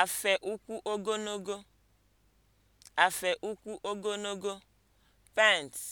Afe ụkwụ ogologo (afe ụkwụ ogologo) pants.